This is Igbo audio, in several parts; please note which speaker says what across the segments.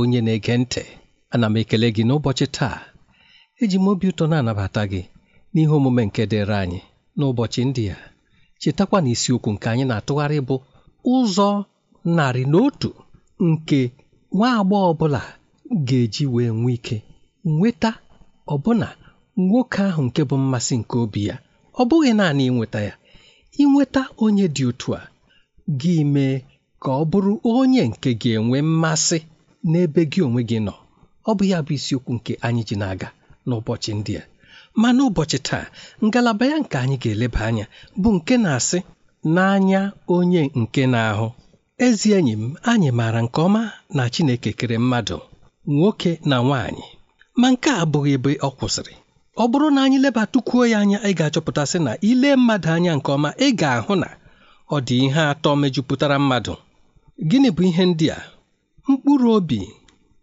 Speaker 1: onye na-ege ntị ana m ekele gị n'ụbọchị taa eji m obi ụtọ na-anabata gị n'ihe omume nke dịrị anyị n'ụbọchị ndị a chetakwa na isiokwu nke anyị na-atụgharị bụ ụzọ narị na otu nke nwa agbọghọ ọbụla ga-eji wee nwee ike nweta ọbụna nwoke ahụ nke bụ mmasị nke obi ya ọ bụghị naanị ịnweta ya ịnweta onye dị otu a gị mee ka ọ bụrụ onye nke ga-enwe mmasị n'ebe gị onwe gị nọ ọ bụ ya bụ isiokwu nke anyị ji na-aga n'ụbọchị ndị a ma n'ụbọchị taa ngalaba ya nke anyị ga-eleba anya bụ nke na-asị n'anya onye nke na-ahụ ezi enyi m anyị maara nke ọma na Chineke kere mmadụ nwoke na nwaanyị ma nke a abụghị ebe ọ kwụsịrị ọ bụrụ na anyị lebatukwuo ya anya ị ga-achọpụtasị na ile mmadụ anya nke ọma ị ga-ahụ na ọ dị ihe atọ mejupụtara mmadụ gịnị bụ ihe ndị a mkpụrụ obi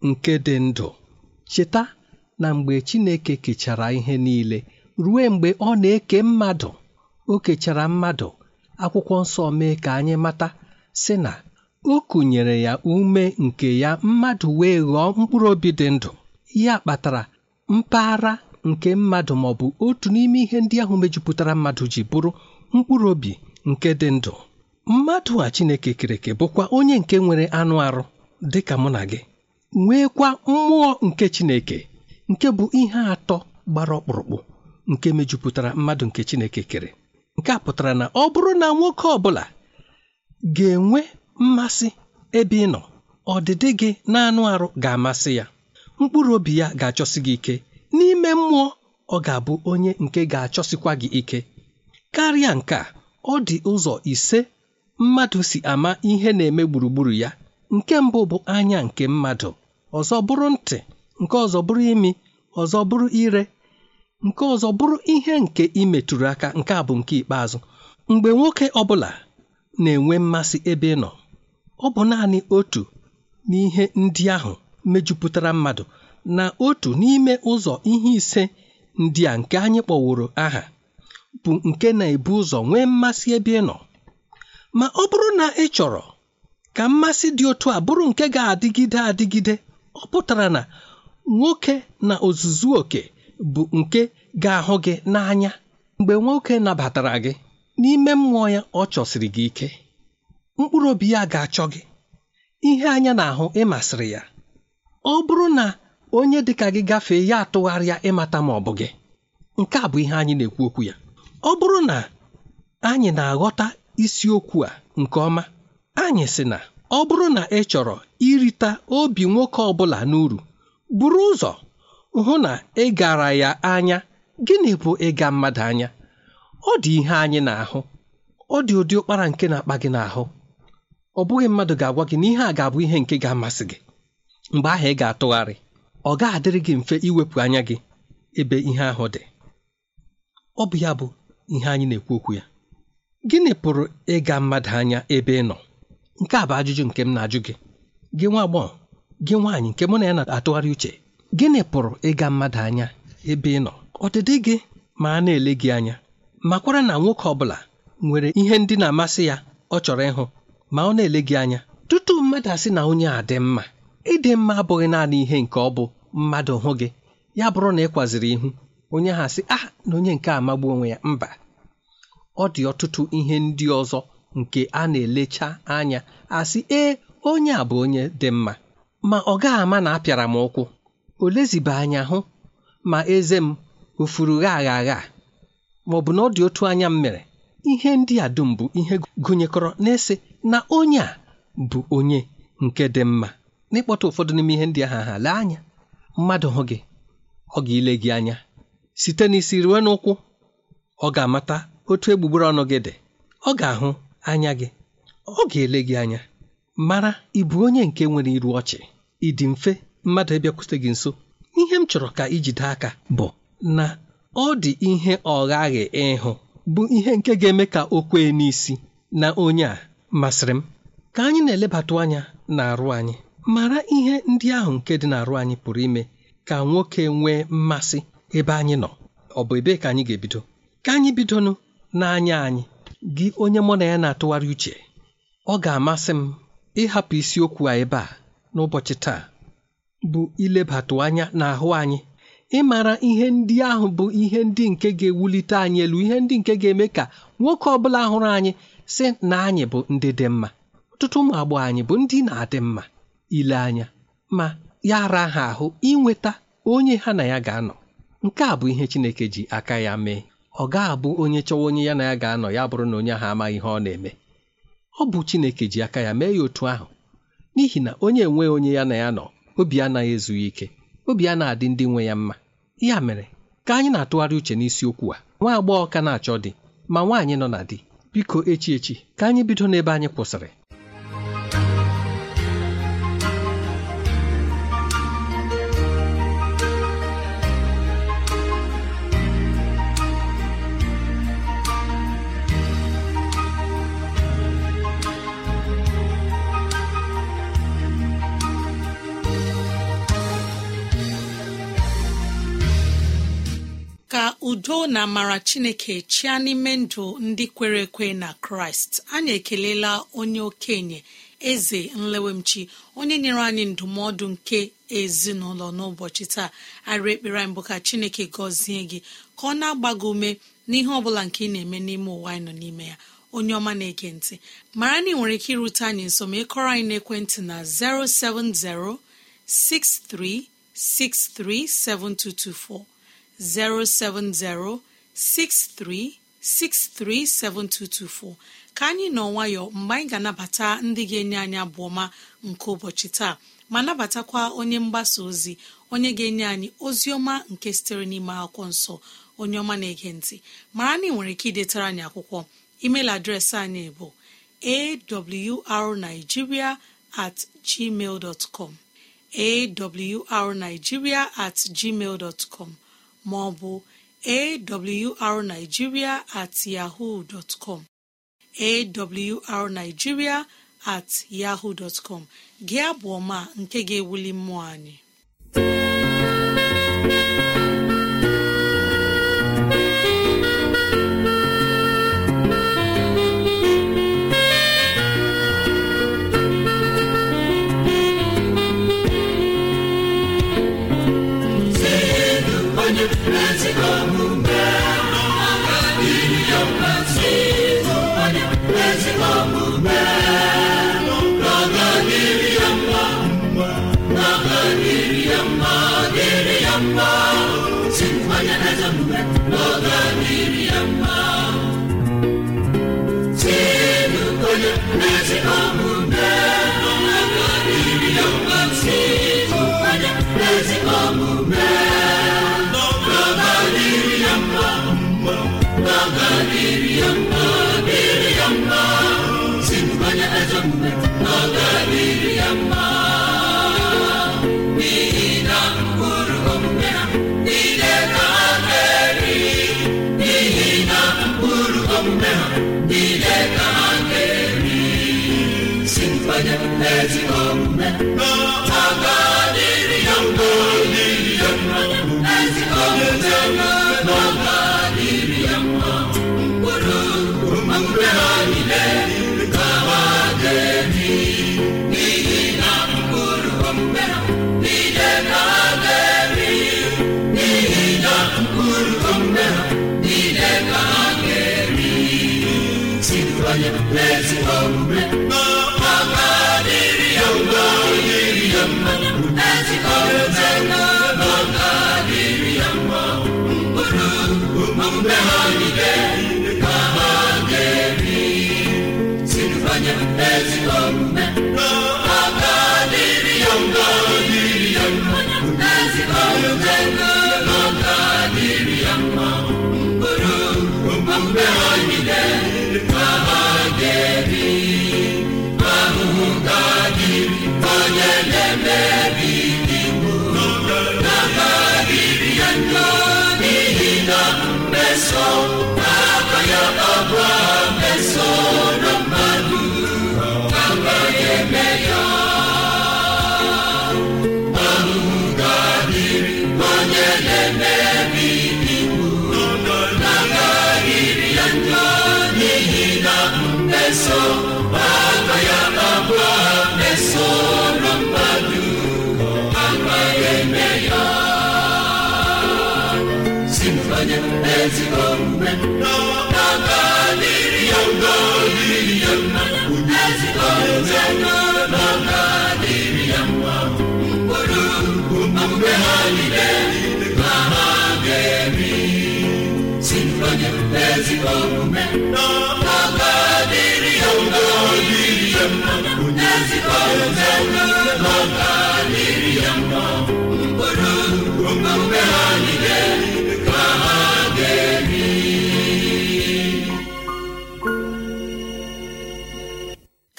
Speaker 1: nke dị ndụ cheta na mgbe Chineke kechara ihe niile ruo mgbe ọ na-eke mmadụ o kechara mmadụ akwụkwọ nsọ mee ka anyị mata si na o kụnyere ya ume nke ya mmadụ wee ghọọ mkpụrụ obi dị ndụ ya kpatara mpaghara nke mmadụ ma ọ bụ otu n'ime ihe ndị ahụ mejupụtara mmadụ ji bụrụ mkpụrụ obi nke dị ndụ mmadụ a Chineke kereke bụkwa onye nke nwere anụ arụ dị ka mụ na gị nweekwa mmụọ nke Chineke nke bụ ihe atọ gbara ọkpụrụkpụ nke mejupụtara mmadụ nke Chineke kere nke a pụtara na ọ bụrụ na nwoke ọ bụla ga-enwe mmasị ebe ị nọ ọdịdị gị na-anụ arụ ga-amasị ya mkpụrụ obi ya ga-achọsi gị ike n'ime mmụọ ọ ga-abụ onye nke ga-achọsikwa gị ike karịa nke a ọ dị ụzọ ise mmadụ si ama ihe na-eme gburugburu ya nke mbụ bụ anya nke mmadụ ọzọ bụrụ ntị nke ọzọ bụrụ imi ọzọ bụrụ ire nke ọzọ bụrụ ihe nke imetụrụ aka nke a bụ nke ikpeazụ mgbe nwoke ọbụla na-enwe mmasị ebe ị nọ ọ bụ naanị otu n'ihe ndị ahụ mejupụtara mmadụ na otu n'ime ụzọ ihe ise ndị a nke anyị kpọworo aha bụ nke na-ebu ụzọ nwee mmasị ebe ị nọ ma ọ bụrụ na ị chọrọ ka mmasị dị otu a bụrụ nke ga-adịgide adịgide ọ pụtara na nwoke na ozuzu oke bụ nke ga-ahụ gị n'anya mgbe nwoke nabatara gị n'ime mmụọ ya ọ chọsiri gị ike mkpụrụ obi ya ga-achọ gị ihe anya na-ahụ ịmasịrị ya ọ bụrụ na onye dị ka gị gafee ya atụgharịa ịmata ma ọ bụ gị nke a bụ ihe anyị na-ekwu okwu ya ọ bụrụ na anyị na-aghọta isiokwu a nke ọma anyị sị na ọ bụrụ na ị chọrọ irita obi nwoke ọ bụla n'uru buru ụzọ hụ na ị gara ya anya gịnị bụ ịga mmadụ anya ọ dị ihe anyị na-ahụ ọ dị ụdị ụkpara nke na-akpa gị n'ahụ ọ bụghị mmadụ ga-agwa gị na ihe a ga-abụ ihe nke ga-amasị gị mgbe ahụ ị ga-atụgharị ọ ga-adịrị gị mfe iwepụ anya gị ebe ihe ahụ dị ọ bụ ya bụ ihe anyị na-ekwu okwu ya gịnị pụrụ ịga mmadụ anya ebe ị nọ nke a bụ ajụjụ nke m na-ajụ gị gị nwa agbọghọ gị nwaanyị nke mụ na ya na-atụgharị uche gịnị pụrụ ịga mmadụ anya ebe ị nọ ọdịdị gị ma a na-ele gị anya makwara na nwoke ọ bụla nwere ihe ndị na-amasị ya ọ chọrọ ịhụ ma ọ na-ele gị anya tutu mmadụ asị na onye a dị mma ịdị mma abụghị naanị ihe nke ọ bụ mmadụ hụ gị ya bụrụ na ị kwaziri ihu onye ha asị ah na onye nke amagbu onwe ya mba ọ dị ọtụtụ ihe ndị ọzọ nke a na-elecha anya asị ee onye a bụ onye dị mma ma ọ gaghị ama na apịara m ụkwụ o leziba anya hụ ma eze m o gha agha agha ma ọ bụ na ọ dị otu anya m mere ihe ndị a dum bụ ihe gụnyekọrọ na-ese na onye a bụ onye nke dị mma n'ịkpọta ụfọdụ n'ime ihe ndị aha ha lee anya mmadụ hụ gị ọ ga-ile gị anya site n'isi ruo n'ụkwụ ọ ga-amata otu egbugbere ọnụ gị dị ọ ga-ahụ anya gị ọ ga-ele gị anya mara ịbụ bụ onye nke nwere iru ọchị ịdị mfe mmadụ ịbịakwute gị nso ihe m chọrọ ka ijide aka bụ na ọ dị ihe ọghaghị ịhụ bụ ihe nke ga-eme ka o kwee n'isi na onye a masịrị m ka anyị na-elebatụ anya na-arụ anyị mara ihe ndị ahụ nke dị n'arụ anyị pụrụ ime ka nwoke nwee mmasị ebe anyị nọ ọ bụ ebee ka anyị ga-ebido ka anyị bidonụ n'anya anyị gị onye mụ na ya na-atụgharị uche ọ ga-amasị m ịhapụ isiokwu a ebe a n'ụbọchị taa bụ ilebatụ anya n'ahụ anyị ịmara ihe ndị ahụ bụ ihe ndị nke ga-ewulite anyị elu ihe ndị nke ga-eme ka nwoke ọbụla hụrụ anyị sị na anyị bụ ndị dị mma ọtụtụ ụmụ agbọghọ anyị bụ ndị na-adị mma ile anya ma ya ara ha ahụ inweta onye ha na ya ga-anọ nke a bụ ihe Chineke ji aka ya mee ọ ga-abụ onye chọwa onye ya na ya ga-anọ ya bụrụ na onye ahụ amaghị ihe ọ na-eme ọ bụ Chineke ji aka ya mee ya otu ahụ n'ihi na onye enweghị onye ya na ya nọ obi anaghị ezughị ike obi a na-adị ndị nwe ya mma ya mere ka anyị na-atụgharị uche n'isiokwu a nwa agbọghọ ka na-achọ dị, ma nwaanyị nọ na di biko echi echi ka anyị bido n'ebe anyị kwụsịrị
Speaker 2: udo na amara chineke chia n'ime ndụ ndị kwere ekwe na kraịst anyị ekelela onye okenye eze nlewemchi onye nyere anyị ndụmọdụ nke ezinụlọ n'ụbọchị taa arị ekpere mbụ ka chineke gọzie gị ka ọ na-agba gị ume n'ihe ọ bụla nke ị na-eme n'ime ụwa anyị nọ n'ime ya onye ọma na-ege ntị mara na ị nwere ike irute anyị nso ma ịkọrọ anyị n'ekwentị na 07063637224 07063637224 ka anyị nọ nwayọ mgbe anyị ga-anabata ndị ga-enye anyị abụọma nke ụbọchị taa ma nabatakwa onye mgbasa ozi onye ga-enye anyị ozi ọma nke sitere n'ime akwụkwọ nsọ onye ọma na-ege ntị mara na ị nwere ike idetara anyị akwụkwọ email adreesị anyị bụ arigiria at gmail com arigiria at gmail com maọbụ arigiria at dtcom arigiria at yahoo dọtcom gị abụ ọma nke ga-ewuli mmụọ anyị
Speaker 3: Amen. ezigbo omume aga dịrị ya mma dịrị ya mma Papa ya Papa Meso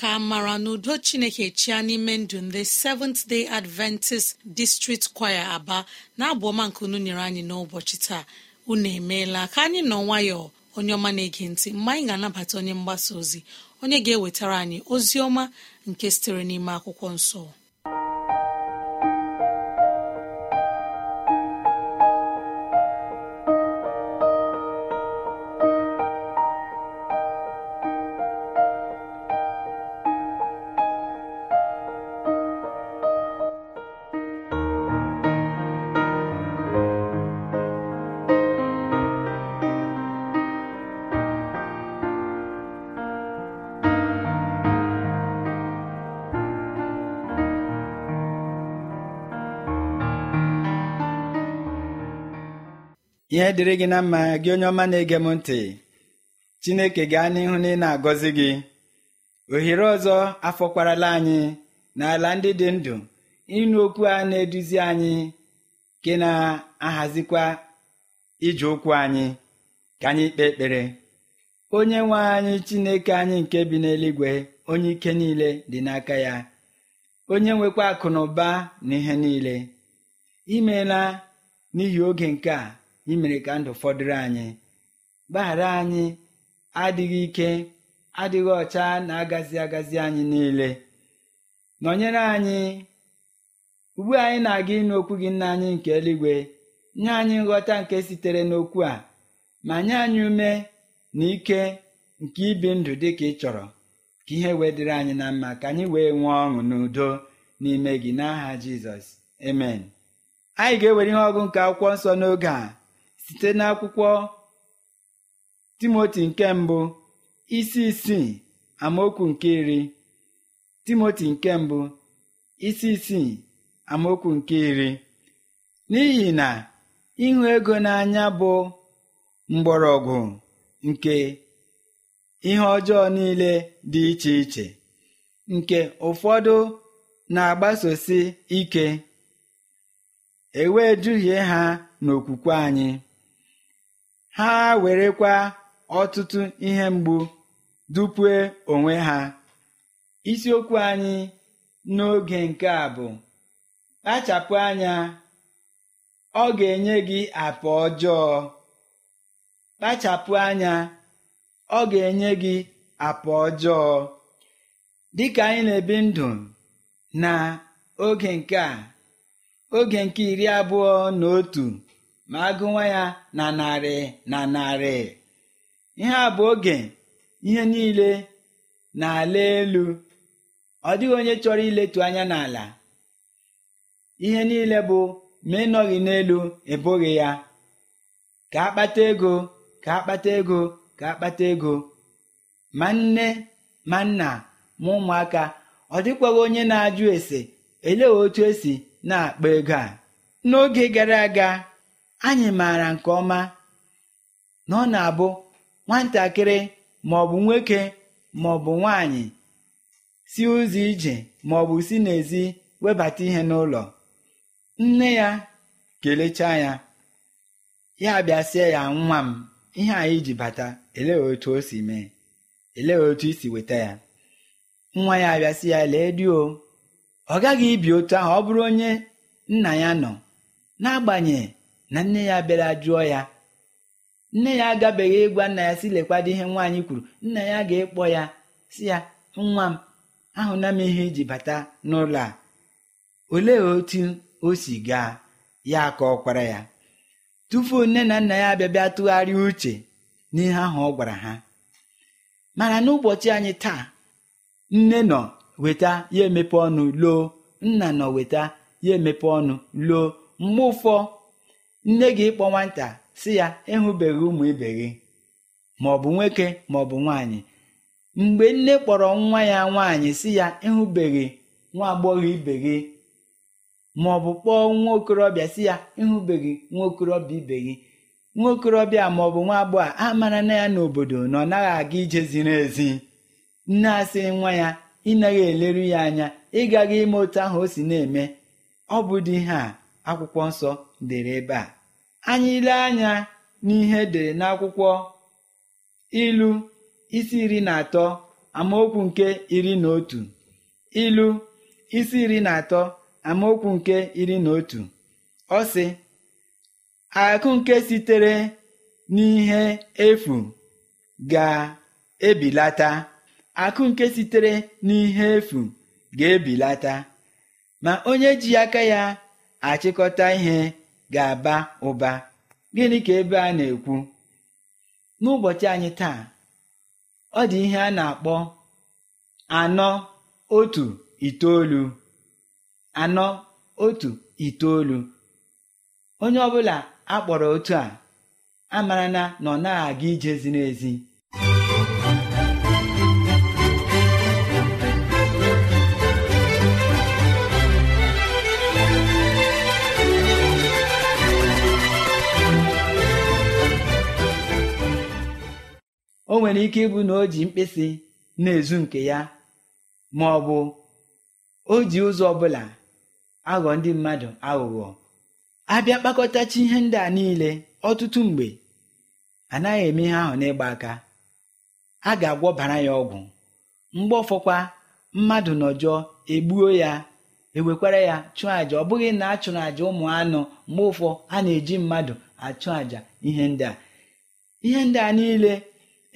Speaker 2: ka mara na udo chineke chia n'ime ndụ ndị seventh day adventist district choir aba na-abụ ọma nke unu nyere anyị n'ụbọchị taa unu emeela ka anyị nọ nwayọọ onye ọma na-ege ntị mgbe anyị ga-anabata onye mgbasa ozi onye ga-ewetara anyị ozi ọma nke sitere n'ime akwụkwọ nsọ
Speaker 1: ihe
Speaker 4: dịrị gị na mma gị onye ọma na-ege m ntị chineke gaa n'ihu na ị na-agọzi gị ohere ọzọ afọkwarala anyị n'ala ndị dị ndụ ịnụ okwu a na-eduzi anyị nke na-ahazikwa ije ụkwụ anyị ka anyị kpee ekpere onye nwe anyị chineke anyị nke bi n'eluigwe onye ike niile dị n'aka ya onye nwekwa akụ na ụba na ihe niile imeela n'ihi oge nke a imere ka ndụ fọdụrụ anyị gbaghara anyị adịghị ike adịghị ọcha na-agazi agazi anyị niile nọnyere anyị ugbu anyị na-aga ịnụ okwu gị nna anyị nke eluigwe nye anyị nghọta nke sitere n'okwu a ma nye anyị ume na ike nke ibi ndụ dị ka ị chọrọ ka ihe wee anyị na mma ka anyị wee nwee ọṅụ n'udo n'ime gị n'aha Jizọs emen anyị ga-ewere ihe ọgụ nke akwụkwọ nsọ n'oge a site n'akwụkwọ timoti nke mbụ isi isii amaokwu nke iri timoti nke mbụ isi isii amaokwu nke iri n'ihi na ịhụ ego n'anya bụ mgbọrọgwụ nke ihe ọjọọ niile dị iche iche nke ụfọdụ na-agbasosi ike ewe duhie ha n'okwukwe anyị ha werekwa ọtụtụ ihe mgbu dupue onwe ha isiokwu anyị n'oge nke a bụ kpachapụ anya ọ ga-enye gị apa ọjọọ kpachapụ anya ọ ga-enye gị apa ọjọọ dịka anyị na-ebi ndụ na oge nke a oge nke iri abụọ na otu ma agụwa ya na narị na narị ihe a bụ oge ihe niile na-ala elu ọ dịghị onye chọrọ iletu anya n'ala ihe niile bụ ma ịnọghị n'elu ebughị ya ka akpata ego ka akpata ego ka akpata ego ma nne ma nna ma ụmụaka ọ dịkwaghị onye na-ajụ ese elee otu esi na-akpa ego a n'oge gara aga anyị maara nke ọma na ọ na-abụ nwatakịrị maọbụ nwoke maọbụ nwanyị si ụzọ ije maọbụ si n'ezi webata ihe n'ụlọ nne ya kelechaa ya ya bịasịa ya nwa m ihe anyị ji bata elee otu o si mee elee otu isi weta ya nwa ya abịasị ya lee di ọ gaghị ibi otu ahụ ọ bụrụ onye nna ya nọ n'agbanyeghị na nne ya bịara jụọ ya nne ya agabeghị ịgwa nna ya si lekwado ihe nwaanyị kwuru nna ya ga ekpo ya si ya nwa m ahụna m ihe iji bata n'ụlọ a olee otu o si gaa ya ka ọ ya tupu nne na nna ya abịabịa tụgharị tụgharịa uche n'ihe ahụ ọ gwara ha mana n'ụbọchị anyị taa nne nọ weta ya emepe ọnụ loo nna nọ weta ya emepe ọnụ loo mgbe ụfọ nne gị kpọ nwata si ya ịhụbeghị ụmụ ibe gị maọbụ nwoke maọbụ nwaanyị mgbe nne kpọrọ nwa ya nwaanyị si ya ịhụbeghị nwa agbọghọ ibe gị maọbụ kpọọ nwa okorobịa si ya ịhụbeghị nwa okorobịa ibe gị nwa okorobịa maọbụ nwa agbọghọ a mara na ya n'obodo na ọ naghị aga ije ziri ezi nne asị nwa ya ịnaghị eleru ya anya ịgaghị ime otu ahụ o si na-eme ọ bụ dị ihe a akwụkwọ nsọ dere ebe a anyị ile anya n'ihe dere n'akwụkwọ ilu isi iri na atọ amaokwu nke iri na otu ilu isi iri na atọ amaokwu nke iri na otu ọ sị akụ nke sitere n'ihe efu ga-ebilata ma onye ji aka ya achịkọta ihe ga-aba ụba gịnị ka ebe a na-ekwu n'ụbọchị anyị taa ọ dị ihe a na-akpọ anọ otu itoolu anọ otu itoolu onye ọbụla akpọrọ otu a amarana na ọ na-aga ije ziri ezi o nwere ike ịbụ na o ji mkpịsị na-ezu nke ya ma ọ bụ o ji ụzọ ọbụla aghọ ndị mmadụ aghụghọ abịa kpakọtachi ihe ndị a niile ọtụtụ mgbe anaghị eme ihe ahụ n'ịgba aka a ga-agwọbara ya ọgwụ mgbe ọfọkwa mmadụ nọjọọ egbuo ya ewekwara ya chụọ àjà ọ bụghị na a chụrụ àjà ụmụ anụ mgbe ụfọ a na-eji mmadụ achụ àjà ihe ndị a ihe ndị a niile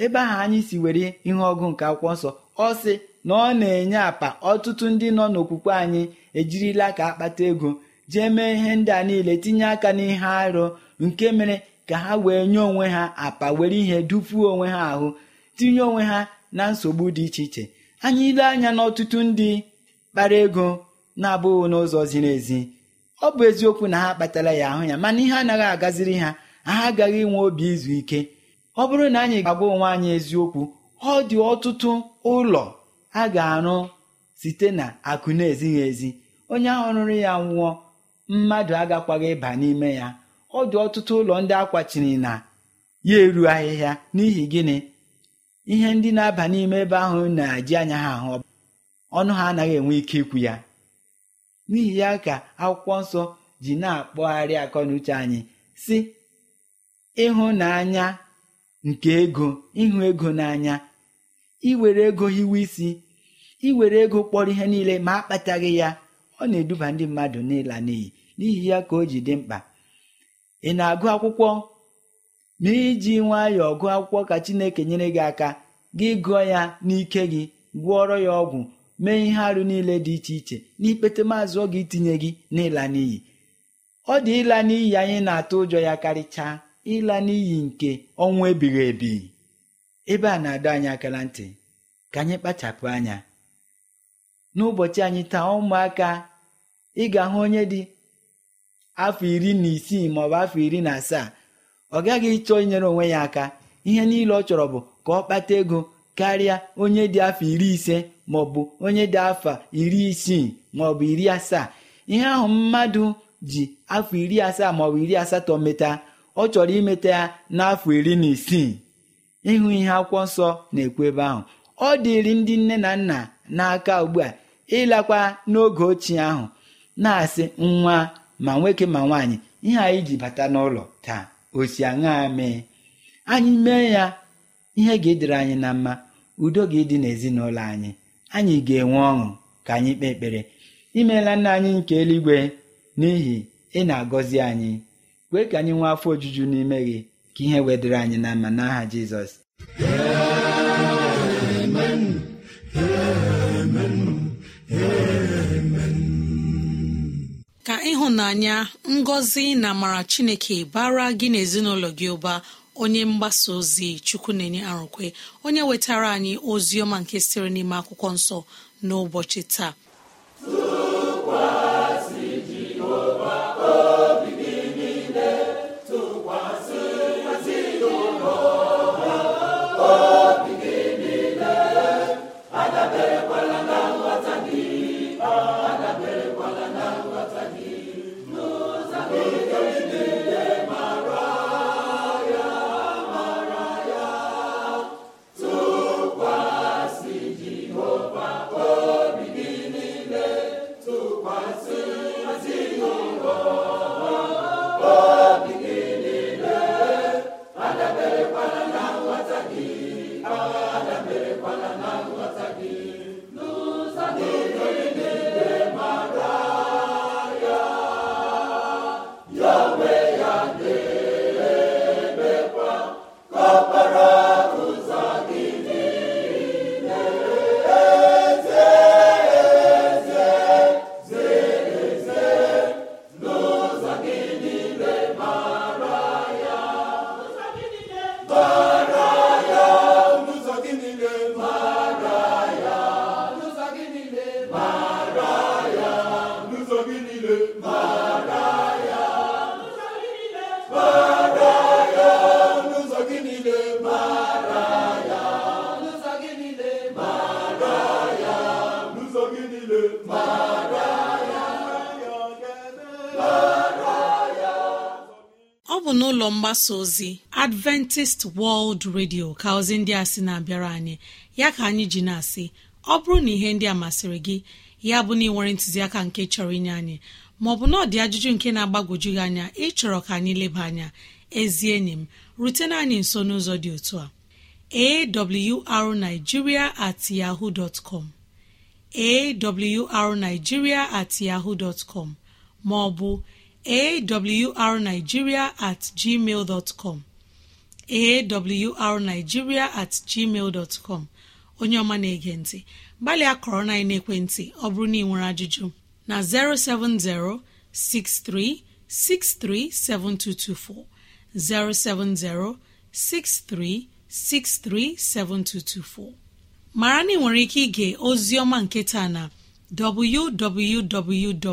Speaker 4: ebe ahụ anyị si were ihe ọgụ nke akwụkwọ nsọ ọ sị na ọ na-enye apa ọtụtụ ndị nọ n'okwukwe anyị ejirila ka akpata ego jee mee ihe ndị a niile tinye aka n'ihe arụ nke mere ka ha wee nye onwe ha apa were ihe dupuo onwe ha ahụ tinye onwe ha na nsogbu dị iche iche anyị ile anya n'ọtụtụ ndị kpara ego na-abụghị n'ụzọ ziri ezi ọ bụ eziokwu na ha kpatara ya ahụ ya mana ihe anaghị agaziri ha ha agaghị inwe obi izu ike ọ bụrụ na anyị ga-agwa onwe anyị eziokwu ọ dị ọtụtụ ụlọ a ga-arụ site na akụ na-ezighị ezi onye ahụ rụrụ ya nwụọ mmadụ agakwaghị ịba n'ime ya ọ dị ọtụtụ ụlọ ndị akwachiri na ya eru ahịhịa n'ihi gịnị ihe ndị na-aba n'ime ebe ahụ na-eji anya ha ahụ ọnụ ha anaghị enwe ike ikwu ya n'ihi ya ka akwụkwọ nsọ ji na-akpọgharị akọ na uche anyị si ịhụnanya nke ego ịhụ ego n'anya iwere ego hiwe isi iwere ego kpọrọ ihe niile ma akpataghị ya ọ na-eduba ndị mmadụ n'ịla n'iyi n'ihi ya ka o ji dị mkpa ị na-agụ akwụkwọ ma iji nwayọọ gụọ akwụkwọ ka Chineke nyere gị aka gị gụọ ya n'ike gị gwọọrọ ya ọgwụ mee ihe arụ niile dị iche iche n'ikpete maazị ọ ga itinye gị n'ịla n'iyi ọ dị ịla n'iyi anyị na-atụ ụjọ ya karịchaa ịla n'iyi nke ọnwụ ebighị ebi ebe a na-adọ anyị akara ntị ka anyị kpachapụ anya n'ụbọchị anyị taa ụmụaka ị ga-ahụ onye dị afọ iri na isii maọbụ afọ iri na asaa ọ gaghị ịchọ inyere onwe ya aka ihe niile ọ chọrọ bụ ka ọ kpata ego karịa onye dị afọ iri ise maọbụ onye dị afọ iri isii maọbụ iri asaa ihe ahụ mmadụ ji afọ iri asaa maọbụ iri asatọ meta ọ chọrọ imeta ya n'afọ iri na isii ịhụ ihe akwụkwọ nsọ na-ekwu ebe ahụ ọ dịrị ndị nne na nna n'aka ugbu a ịlakwa n'oge ochie ahụ na-asị nwa ma nwoke ma nwaanyị ihe anyị ji bata n'ụlọ taa osi aṅaa mee anyị mee ya ihe ga-edere anyị na mma udo ga-edị n'ezinụlọ anyị anyị ga-enwe ọṅụ ka anyị kpee ekpere imeela nna anyị nke eluigwe n'ihi ị na-agọzi anyị wee ka anyị nwee afọ ojuju n'ime gị ka ihe wedịrị anyị na mma n'aha Jizọs
Speaker 2: ka ịhụnanya ngọzi na amara Chineke bara gị n'ezinụlọ gị ụba onye mgbasa ozi chukwu na-enye arụkwe onye wetara anyị ozi ọma nke sịrị n'ime akwụkwọ nsọ n'ụbọchị taa ụlọ mgbasa ozi adventist world radio ka ozi ndị a sị na-abịara anyị ya ka anyị ji na-asị ọ bụrụ na ihe ndị a masịrị gị ya bụ na ịnwere ntụziaka nke chọrọ inye anyị maọbụ na ọ dị ajụjụ nke na-agbagwoju gị anya ịchọrọ ka anyị leba anya ezi enyi m rutena anyị nso n'ụzọ dị otu a arigiria at yahoo dot com awrnigeria at yahoo dot com maọbụ awrnigeria at gmail dot com awrnigeria at gmail dot com onye ọma na-ege ntị gbalịa kọrọ na ekwentị ọ bụrụ na ị nwere ajụjụ na 07063637224 7224. mara na ị nwere ike ige ozi ọma nke taa na www.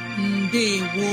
Speaker 2: ndewo